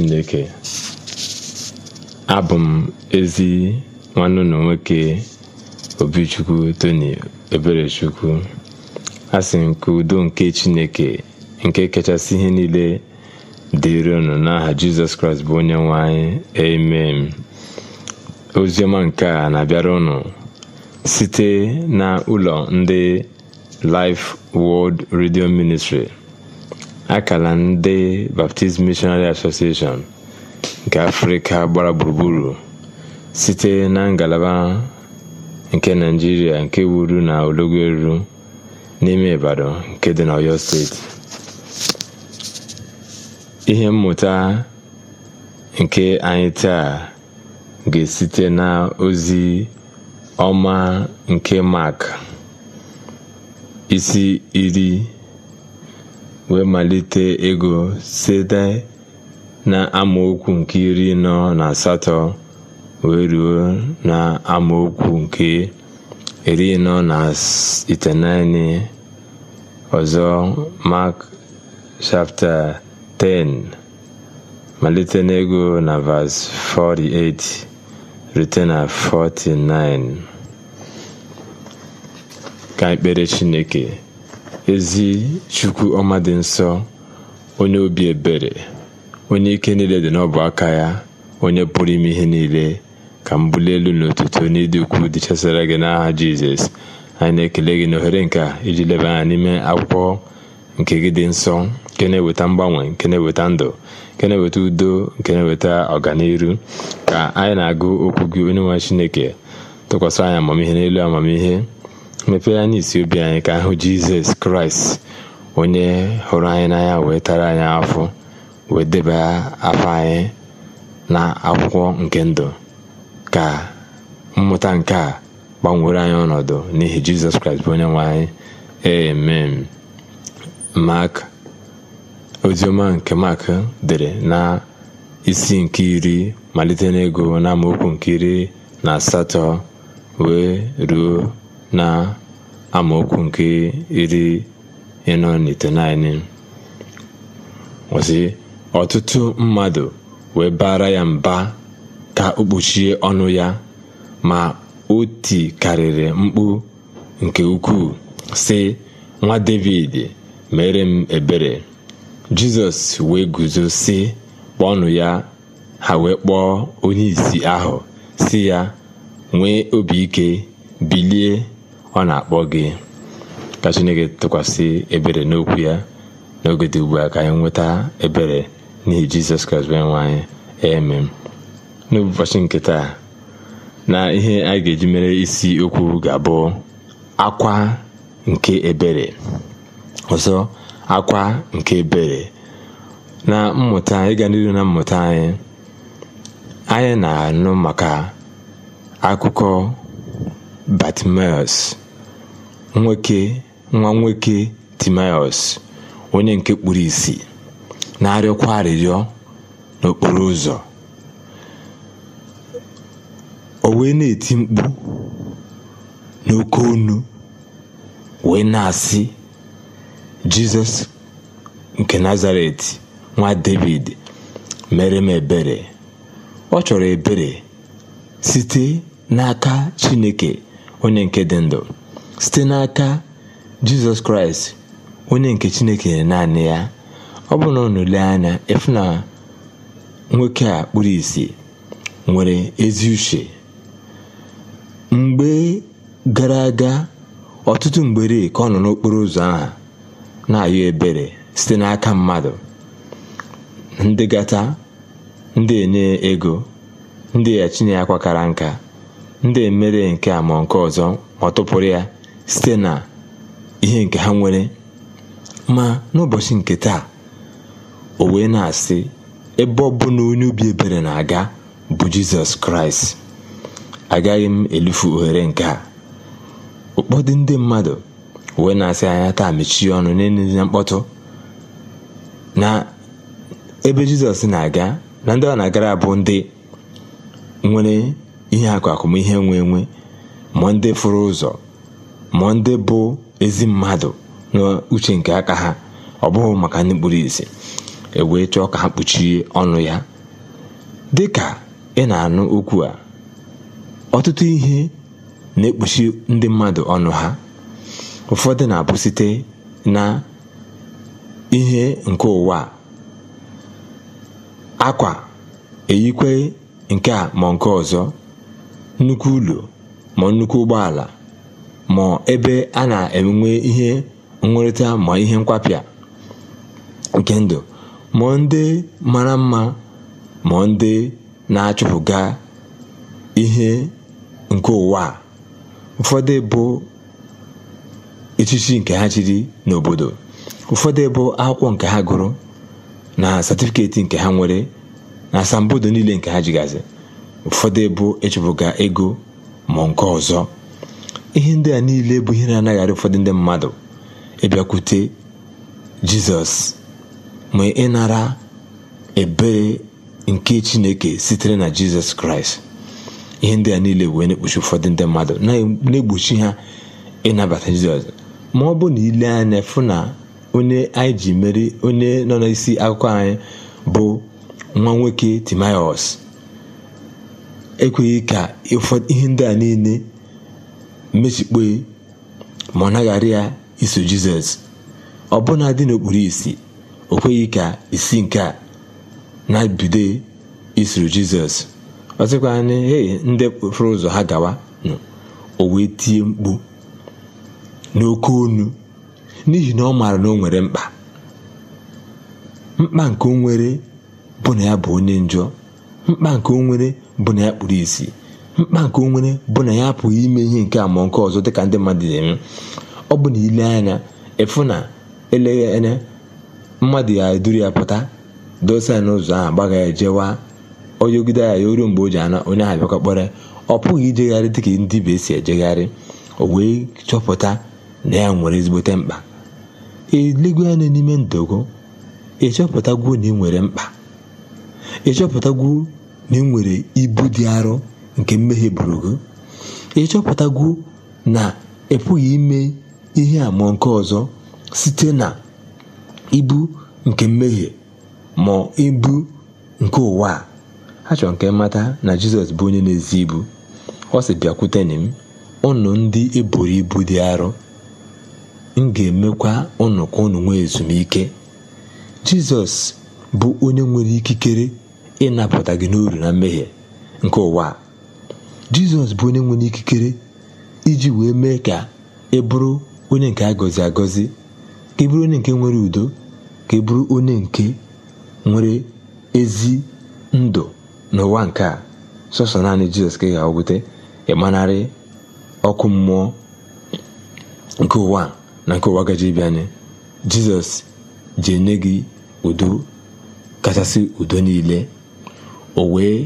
Chineke abụ m ezi nwanne unu nwoke Obichukwu Tony Eberechukwu asị nke udo nke Chineke nke kachasị ihe niile dịrị ụnụ n'aha Jizọs Kraịst bụ onye nwe emem amen oziọma nke a na-abịara ụnụ site na ụlọ ndị Life World Radio Ministry Akara ndị Baptist Missionary Association nke Afrịka gbara gburugburu site na ngalaba nke naijiria nke wuru na elu n'ime Ibadan nke dị n'Ọyọ Steeti. Ihe mmụta nke anyị taa ga-esite n'ozi ọma nke isi iri. wee malite ego site amaokwu nke iri nọ na asatọ wee ruo na amaokwu nke iri nọ na itenaine ọzọ mak shafta 10 malite n'ego na vas 48 rute na 49 ka ekpere Chineke ezi Chukwu ọma dị nsọ onye obi ebere onye ike niile dị n'ọbụ aka ya onye pụrụ ime ihe niile ka m bulie elu n'ụtụtụ dị ukwuu dị gị n'aha jizọs anyị na-ekele gị n'ohere nke a iji leba anya n'ime akwụkwọ nke gị dị nsọ nke na-eweta mgbanwe nke na-eweta ndụ nke na-eweta udo nke na-eweta ọganiru ka anyị na-agụ okwu gị onye nwe chineke tụkwasị anyị amamihe n'elu amamihe mepee anya isi obi anyị ka ahụ jizọs kraịst onye hụrụ anyị n'anya wee tara anyị afọ wee deba afọ anyị na akwụkwọ nke ndụ ka mmụta nke a gbanwere anyị ọnọdụ n'ihi jizọs kraịst bụ onye nwe anyị amen mak oziọma nke mak dere na isi nke iri malite n'ego na amaokwu nke iri na asatọ wee ruo na amaokwu nke iri ịnọ na itenaine ọtụtụ mmadụ wee bara ya mba ka o kpuchie ọnụ ya ma o tikarịrị mkpu nke ukwuu sị nwa David mere m ebere Jizọs wee guzo sị kpọọnụ ya ha wee kpọọ onye ìsì ahụ sị ya nwee obi ike bilie ọ na-akpọ gị ka chineke tụkwasị ebere n'okwu ya n'oge dị ugbu a ka anyị nweta ebere n'ihi jizọs kraịst bụ nwe anyị nke taa na ihe anyị ga-eji mere isi okwu ga-abụ akwa nke ebere ọzọ akwa nke ebere na mmụta ịga n'iru na mmụta anyị anyị na-anụ maka akụkọ batimius nwoke nwa nwoke Timaeus onye nke kpuru ìsì na-arịọkwa arịrịọ n'okporo ụzọ o wee na-eti mkpu n'oke onu wee na-asị Jizọs nke Nazaret nwa David mere m ebere ọ chọrọ ebere site n'aka Chineke onye nke dị ndụ site n'aka Jizọs Kraịst onye nke Chineke naanị ya ọ bụrụ na unu lee anya ịfụ na nwoke a kpụrụ ìsì nwere ezi uche mgbe gara aga ọtụtụ mgbere ka ọ nọ n'okporo ụzọ ahụ na-ayọ ebere site n'aka mmadụ ndị gata ndị enye ego ndị ya chinye akwa nka ndị emere nke a nke ọzọ ma ọ tụpụrụ ya site na ihe nke ha nwere ma n'ụbọchị nke taa o wee na-asị ebe ọ bụla onye obi ebere na-aga bụ jizọs kraịst agaghị m elufu ohere nke a ụkpọdụ ndị mmadụ wee na-asị anya taa mechie ọnụ n'enye na mkpọtụ na ebe jizọs na-aga na ndị ọ na-agara bụ ndị nwere ihe akụ akụmihe nwe enwe ma ndị fụrụ ụzọ ma ndị bụ ezi mmadụ n'uche nke aka ha ọ bụghị maka ndị kpuru ewee chọọ ka ha kpuchie ọnụ ya dị ka ị na-anụ okwu a ọtụtụ ihe na-ekpuchi ndị mmadụ ọnụ ha ụfọdụ na-abụ site na ihe nke ụwa akwa eyikwe nke a ma nke ọzọ nnukwu ụlọ ma nnukwu ụgbọala ma ebe a na-enwe ihe nnwere ma ihe nkwapịa nke ndụ ma ndị mara mma ma ndị na-achụpụga ihe nke ụwa ụfọdụ bụ echichi nke ha chiri n'obodo ụfọdụ bụ akwụkwọ nke ha gụrụ na satifiketi nke ha nwere na asambodo niile nke ha jigazi ụfọdụ bụ ịchụpụga ego ma nke ọzọ ihe ndị a niile bụ ihe na-anaghị ụfọdụ ndị mmadụ ịbịakwute jizọs ma ịnara ebere nke chineke sitere na jizọs kraịst ihe ndị a niile wee na-ekpuchi ụfọdụ ndị mmadụ na-egbochi ha ịnabata jizọs ma ọ bụ na ile anya fụ na onye anyị ji meri onye nọ n'isi akụkọ anyị bụ nwa nwoke timaios ekweghị ka ihe ndị a niile mechikpe ma ọ naghara ya iso jizọs ọbụna dị n'okpuru isi o kweghị ka isi nke a na-ebido isoro jizọs ọ sịkwa anyị hei ndị ụzọ ha gawa nụ o wee tie mkpu n'oke onu n'ihi na ọ maara na o nwere mkpa mkpa nke o nwere bụ na ya bụ onye njọ mkpa nke o nwere bụ na ya kpuru isi mkpa nke onwere bụ na ya apụghị ime ihe nke a nke ọzọ dịka ndị mmadụ na-eme ọ bụ na ile anya ịfụ na eleghị anya mmadụ ya eduru ya pụta dosa ya n'ụzọ ahụ gbaga ya jewa onyegide ya ya oruo mgbe o ji ana onye ahụ bịakwa kpọrọ ọ pụghị ijegharị dịka ndị be si ejegharị o wee chọpụta na ya nwere ezigbote mkpa elego anya n'ime ndogo ịchọpụtagwuo na ị nwere mkpa ịchọpụtagwuo na ị nwere ibu dị arọ nke mmehie buru gị chọpụtagwu na ị pụghị ime ihe ama nke ọzọ site na ibu nke mmehie ma ibu nke ụwa a chọrọ nke mata na jizọs bụ onye na-ezi ibu ọ sị bịakwuteni m ụnụ ndị eburu ibu dị arọ m ga-emekwa ụnụ ka ụnụ nwee ezumike jizọs bụ onye nwere ikikere ịnapụta gị n'uru na mmehie nke ụwa jizọs bụ onye nwere ikikere iji wee mee ka ị e bụrụ onye nke a gọzi agọzi ka e bụrụ onye nke nwere udo ka ị e bụrụ onye nke nwere ezi ndụ n'ụwa nke a sọsọ naanị jizọs ka ị ga ịmanarị ọkụ mmụọ nke ụwa na nke ụwa gaji bịa anyị jizọs ji enye gị udo kachasị udo niile o wee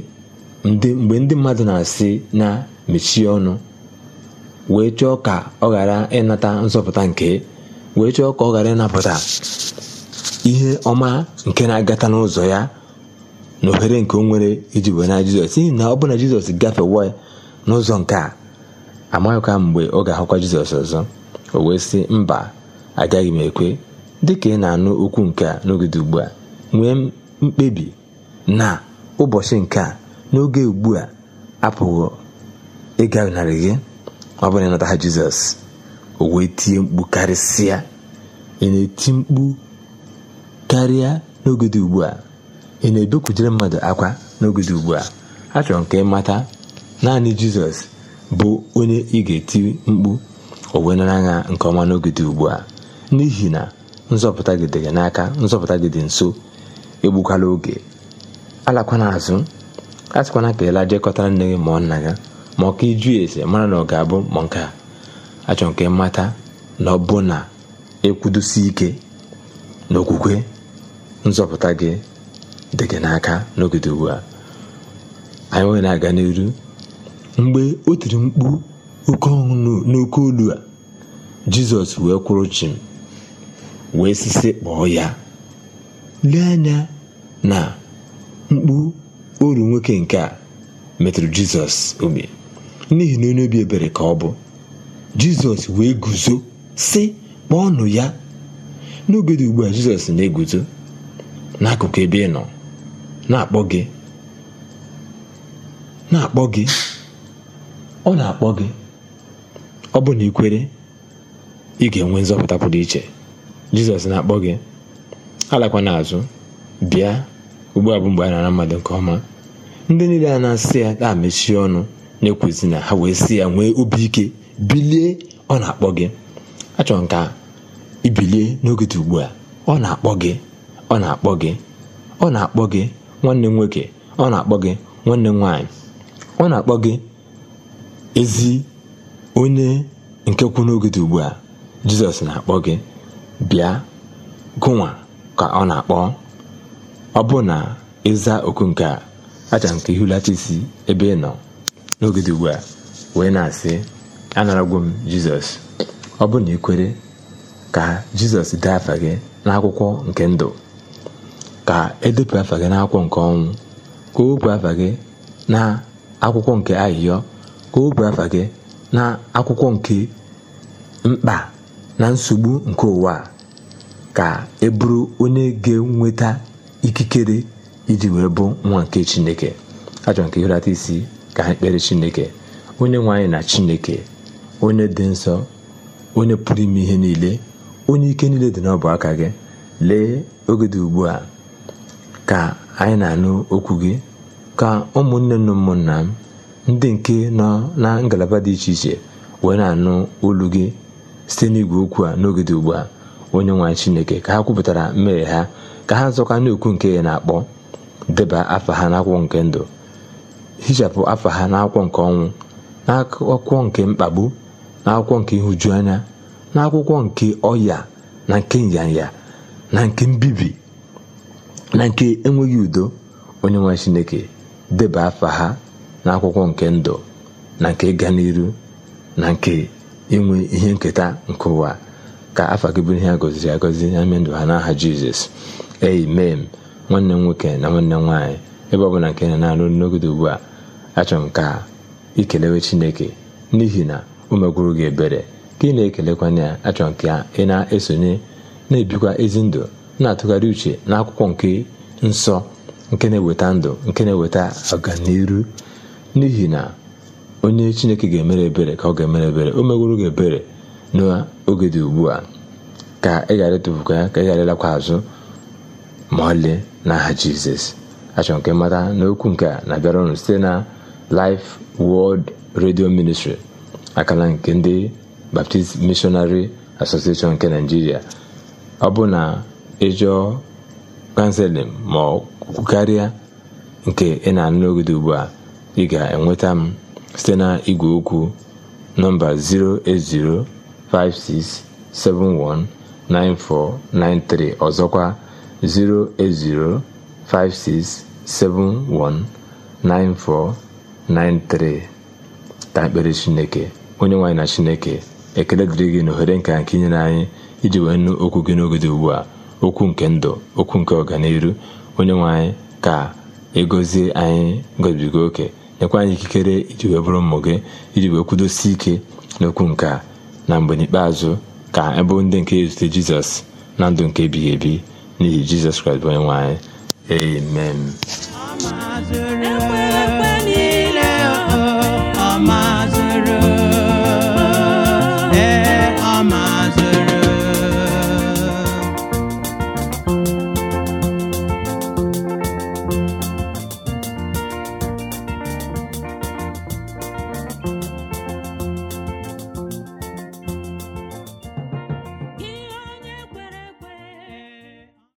mgbe ndị mmadụ na-asị na mechie ọnụ wee chọọ ka ọ ghara ịnata nzọpụta nke wee chọọ ka ọ ghara ịnapụta ihe ọma nke na-agata n'ụzọ ya na ohere nke o nwere iji wee na jizọs ihi na ọ bụ na jizọs gafewa n'ụzọ nke a amaghịkwa mgbe ọ ga-ahụkwa jizọs ọzọ o wee sị mba agaghị m ekwe dị ka ị na-anụ okwu nke a n'ogide ugbu a nwee mkpebi na ụbọchị nke a n'oge ugbu a apụghị narị gị ọ bụrụ ịnata ha jizọs o wee tie mkpu karịsịa ị na-eti mkpu karịa n'oge dị ugbu a ị na-ebekwujere mmadụ akwa n'oge dị ugbu a achọrọ nke mata naanị jizọs bụ onye ị ga-eti mkpu o wee nke ọma n'oge dị ugbu a n'ihi na nzọpụta gị dị n'aka nzọpụta gị nso egbukwala oge alakwana azụ a sịkwana ka ịla jekọtara nne gị ọ nna ya e ma ọ e ka ese mara na ọ ga-abụ ma nke a achọ nke mmata na ọ bụ na ekwudosi ike na okwukwe nzọpụta gị dị gị n'aka n'ogede ugbu a anyị nwere na-aga n'elu mgbe o tiri mkpu oke ọṅụ n'oke olu a jizọs wee kwụrụ chim wee sisi kpọọ ya lee anya na mkpu uru nwoke nke a metụrụ jizọs obi n'ihi na onye obi ebere ka ọ bụ jizọs wee guzo si kpọọnụ ya n'oge dị ugbu a jizọs na-eguzo n'akụkụ ebe ị nọ na-akpọ gị na-akpọ gị ọ na-akpọ gị ọ bụ na ikwere ị ga-enwe nzọpụta pụrụ iche jizọs na-akpọ gị alakwana azụ bịa ugbu a bụ mgbe a nara mmadụ nke ọma ndị niile a na-asị ya ga mechie ọnụ na na ha wee sị ya nwee obi ike bilie ọ na-akpọ gị achọrọ m ka ibilie n'oge dị ugbu a ọ na-akpọ gị ọ na-akpọ gị ọ na-akpọ gị nwanne m nwoke ọ na-akpọ gị nwanne nwanyị nwaanyị ọ na-akpọ gị ezi onye nke kwụ n'oge dị ugbu a jizọs na-akpọ gị bịa gụnwa ka ọ na-akpọ ọ bụ na ịza oku nke a acha nke ka isi ebe ị nọ n'oge dị ugbu a wee na-asị anaragwo m jizọs ọ bụrụ na ị ka jizọs dee afa gị n'akwụkwọ nke ndụ ka edepụ afa gị n'akwụkwọ nke ọnwụ ka o wepụ afa gị na akwụkwọ nke ahịhịọ ka o wepụ afa gị na akwụkwọ nke mkpa na nsogbu nke ụwa ka e bụrụ onye ga-enweta ikikere iji wee bụ nwa nke chineke achọrọ nke ihurata isi ka anyị kpere chineke onye nwe anyị na chineke onye dị nsọ onye pụrụ ime ihe niile onye ike niile dị n'ọbụ aka gị lee oge dị ugbu a ka anyị na-anụ okwu gị ka ụmụnne na ụmụnna m ndị nke nọ na ngalaba dị iche iche wee na-anụ olu gị site n'igwe okwu a n'oge dị ugbu a onye nwe chineke ka ha kwupụtara mmehie ha ka ha zọkwa n'okwu nke ya na-akpọ deba afa ha n'akwụkwọ nke ndụ hichapụ afa ha n'akwụkwọ nke ọnwụ n'akwụkwọ nke mkpagbu n'akwụkwọ nke ịhụju anya n'akwụkwọ nke ọya na nke nyanya na nke mbibi na nke enweghị udo onye nwe chineke deba afa ha n'akwụkwọ nke ndụ na nke ịga n'iru na nke inwe ihe nketa nke ụwa ka afa gị bụrụ ihe a gọziri agọzi na ime ndụ ha n'aha jizọs m. nwanne m nwoke na nwanne m nwaanyị ebe ọ bụla nke na-alụ na n'ogede ugbu a achọrọ m ka ikelewe chineke n'ihi na o megwuru gị ebere ka ị na-ekelekwa ya achọrọ nke a ị na-esonye na-ebikwa ezi ndụ na-atụgharị uche na akwụkwọ nke nsọ nke na-eweta ndụ nke na-eweta ọganiru n'ihi na onye chineke ga-emere ebere ka ọ ga-emere ebere o megwuru gị ebere n'oge dị ugbu a ka ị ghara ịtụfukwa ya ka ị ghara ịlakwa azụ ma ọlị n'aha jizọs achọrọ nke mata n'okwu nke a na-abịara ọnụ site na Life World Radio Ministry akala nke ndị Baptist Missionary Association nke Nigeria ọ bụ na ịjọ kanseling ma ọ kwukarịa nke ị na-anụ n'ogede ugbu a ị ga-enweta m site na igwe okwu nọmba 08056719493 ọzọkwa 08056719493 ka ekpere chineke onye nwaanyị na chineke ekele dịrị gị na ohere nke nke inyere anyị iji wee nụ okwu gị n'oge dị ugbu a okwu nke ndụ okwu nke ọganiru onye nwe ka egozie anyị gobigo oke nyekwa anyị ikikere iji wee bụrụ ụmụ gị iji wee kwudosi ike n'okwu nke a na mgbe n'ikpeazụ ka ebe ndị nke ezute jizọs na ndụ nke ebighị ebi n'ihi jizọs kraịst bụ onye nwe anyị amen